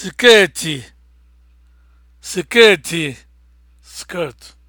skeeti skeeti skirt